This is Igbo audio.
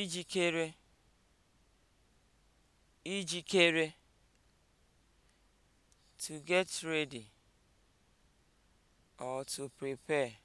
ijikere ijikere to get ready or to prepare